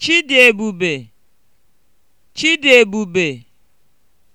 Chidiebube Chidiebube